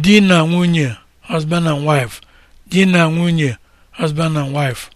di na nwunye husband and wife di na nwunye husband and wife